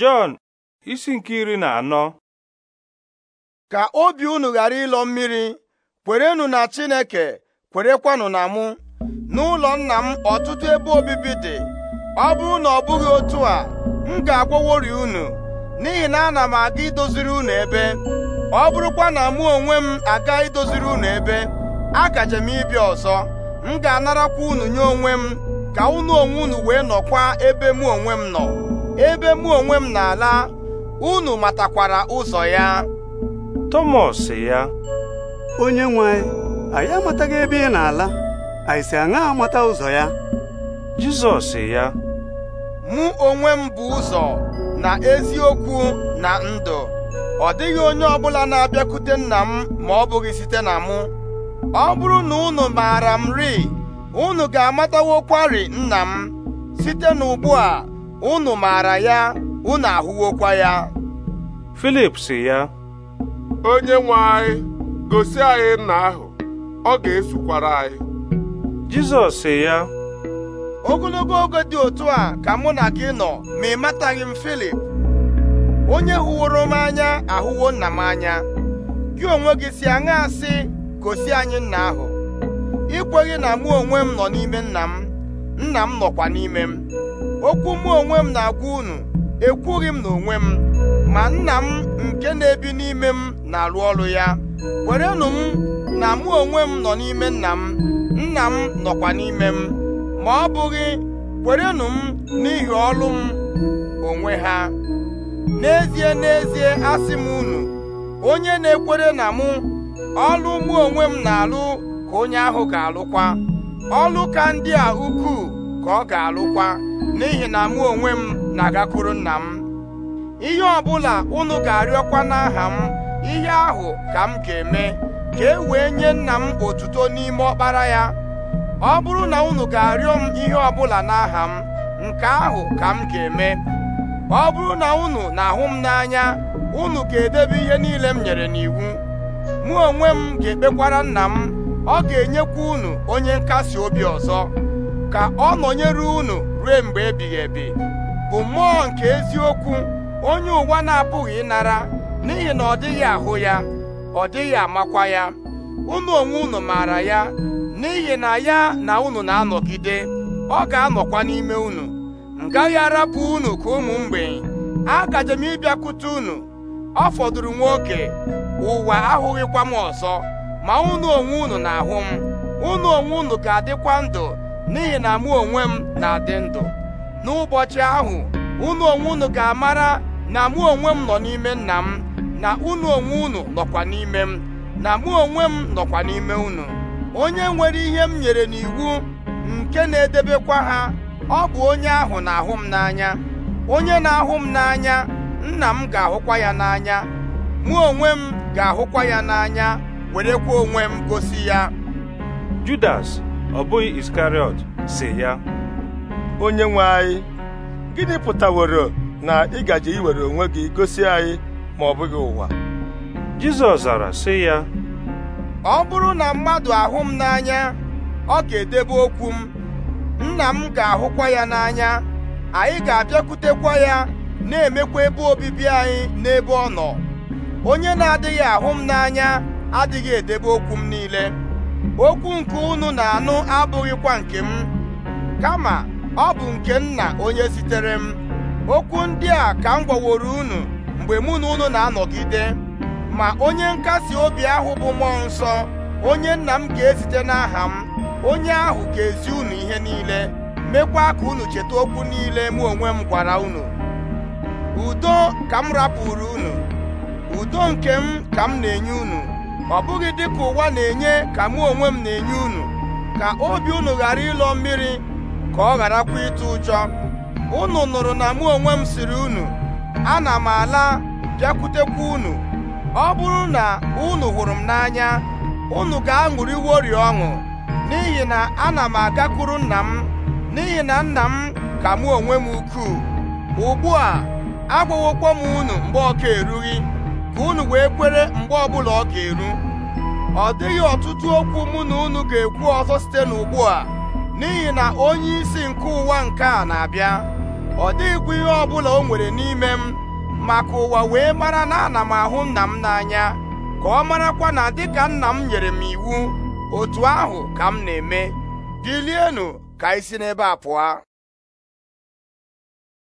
Jọn isi nke iri na anọ ka obi unu ghara ịlọ mmiri kwerenụ na Chineke kwerekwanụ na mụ n'ụlọ nna m ọtụtụ ebe obibi dị ọ bụrụ na ọ bụghị otu a m ga-agwọworị unu n'ihi na ana m aga idoziri unu ebe ọ bụrụkwa na mụ onwe m aga idoziri unu ebe agaje m ịbịa ọzọ m ga-anarakwa unu nye onwe m ka unu onwe unu wee nọkwa ebe mụ onwe m nọ ebe mụ onwe m na-ala unu matakwara ụzọ ya Tọmọs ya onye nwe anyị amataghị ebe ị na-ala anyị si aṅa amata ụzọ ya Jizọs ya mụ onwe m bụ ụzọ na eziokwu na ndụ ọ dịghị onye ọbụla na-abịakwute nna m ma ọ bụghị site na mụ ọ bụrụ na unu maara m ri unu ga-amatawokwarị nna m site n'ugbu a unu maara ya unu ahụwokwa ya Filip si ya onye nwe anyị gosi anyị nna ahụ ọ ga-esokwara anyị Jizọs si ya ogologo oge dị otu a ka mụ na gị nọ ma ị mataghị m Filip onye hụworo m anya ahụwo nna m anya gị onwe gị si aṅa asị gosi anyị nna ahụ ikweghị na mụ onwe m nọ n'ime nna m nna m nọkwa n'ime m okwu mụ onwe m na-agwa unu ekwughị m n'onwe m ma nna m nke na-ebi n'ime m na-arụ ọrụ ya kwerenụ m na mụ onwe m nọ n'ime nna m nna m nọkwa n'ime m ma ọ bụghị kwerenụ m n'ihi ọrụ m onwe ha n'ezie n'ezie asị m unu onye na-ekwere na mụ ọlụ mụ onwe m na-alụ ka onye ahụ ga-alụkwa ọlụ ka ndị a ukwuu ka ọ ga-alụkwa n'ihi na mụ onwe m na-agakwuru nna m ihe ọbụla unu ga-arịọkwa n'aha m ihe ahụ ka m ga-eme ka e wee nye nna m otuto n'ime ọkpara ya ọ bụrụ na unu ga-arịọ m ihe ọbụla n'aha m nke ahụ ka m ga-eme ọ bụrụ na unu na-ahụ m n'anya unu ga-edebe ihe niile m nyere n'iwu mụ onwe m ga-ekpekwara nna m ọ ga-enyekwa unu onye nkasi obi ọzọ ka ọ nọnyere unu rue mgbe ebighị ebi bụ mmụọ nke eziokwu onye ụwa na-apụghị ịnara n'ihi na ọ dịghị ahụ ya ọ dịghị amakwa ya unu onwe unu maara ya n'ihi na ya na unu na-anọgide ọ ga-anọkwa n'ime unu ngaghị arapụ unu ka ụmụ mgbei agajem m ịbịakwute unu ọ fọdụrụ nwoke ụwa ahụghịkwa m ọzọ ma unu onwe unu na-ahụ m unu onwe unu ga-adịkwa ndụ n'ihi na mụ onwe m na-adị ndụ n'ụbọchị ahụ unu onwe unu ga-amara na mụ onwe m nọ n'ime nna m na unu onwe unu nọkwa n'ime m na mụ onwe m nọkwa n'ime unu onye nwere ihe m nyere n'iwu nke na-edebekwa ha ọ bụ onye ahụ na-ahụ m n'anya onye na-ahụ m n'anya nna m ga-ahụkwa ya n'anya mụ onwe m ga-ahụkwa ya n'anya werekwa onwe m gosi ya Judas ọ bụghị iskariọt si ya onye nwe anyị gịnị pụtaworo na ị gaje iwere onwe gị gosi anyị ma ọ bụghị ụwa Jizọs zara sị ya ọ bụrụ na mmadụ ahụ m n'anya ọ ga-edebe okwu m nna m ga-ahụkwa ya n'anya anyị ga-abịakwutekwa ya na-emekwa ebe obibi anyị n'ebe ọ nọ onye na-adịghị ahụ m n'anya adịghị edebe okwu m niile okwu nke unu na-anụ abụghịkwa nke m kama ọ bụ nke nna onye zitere m okwu ndị a ka m gwaworo unu mgbe mụ na unu na-anọgide ma onye nkasi obi ahụ bụ mmụọ nsọ onye nna m ga-ezite n'aha m onye ahụ ga-ezi unu ihe niile mekwa ka unu cheta okwu niile mụ onwe m gwara unu udo ka m rapụrụ unu udo nke m ka m na-enye unu ọ bụghị dịka ụwa na-enye ka mụ onwe m na-enye unu ka obi unu ghara ịlọ mmiri ka ọ gharakwa ịtụ ụjọ unu nụrụ na mụ onwe m siri unu ana m ala bịakwutekwa unu ọ bụrụ na unu hụrụ m n'anya unu ga orie ọṅụ n'ihi na ana m agakwuru nna m n'ihi na nna m ka mụ onwe m ukwuu ugbu a agwawokwa m unu mgbe ọka erughị ka unu wee kwere mgbe ọbụla ọ ga-eru ọ dịghị ọtụtụ okwu mụ na unu ga-ekwu ọzọ site n'ugbu a n'ihi na onye isi nke ụwa nke a na-abịa ọ dịghịkwa ihe ọbụla o nwere n'ime m maka ụwa wee mara na ana m ahụ nna m n'anya ka ọ marakwa na dịka nna m nyere m iwu otu ahụ ka m na-eme bilienụ ka isi n'ebe a pụọ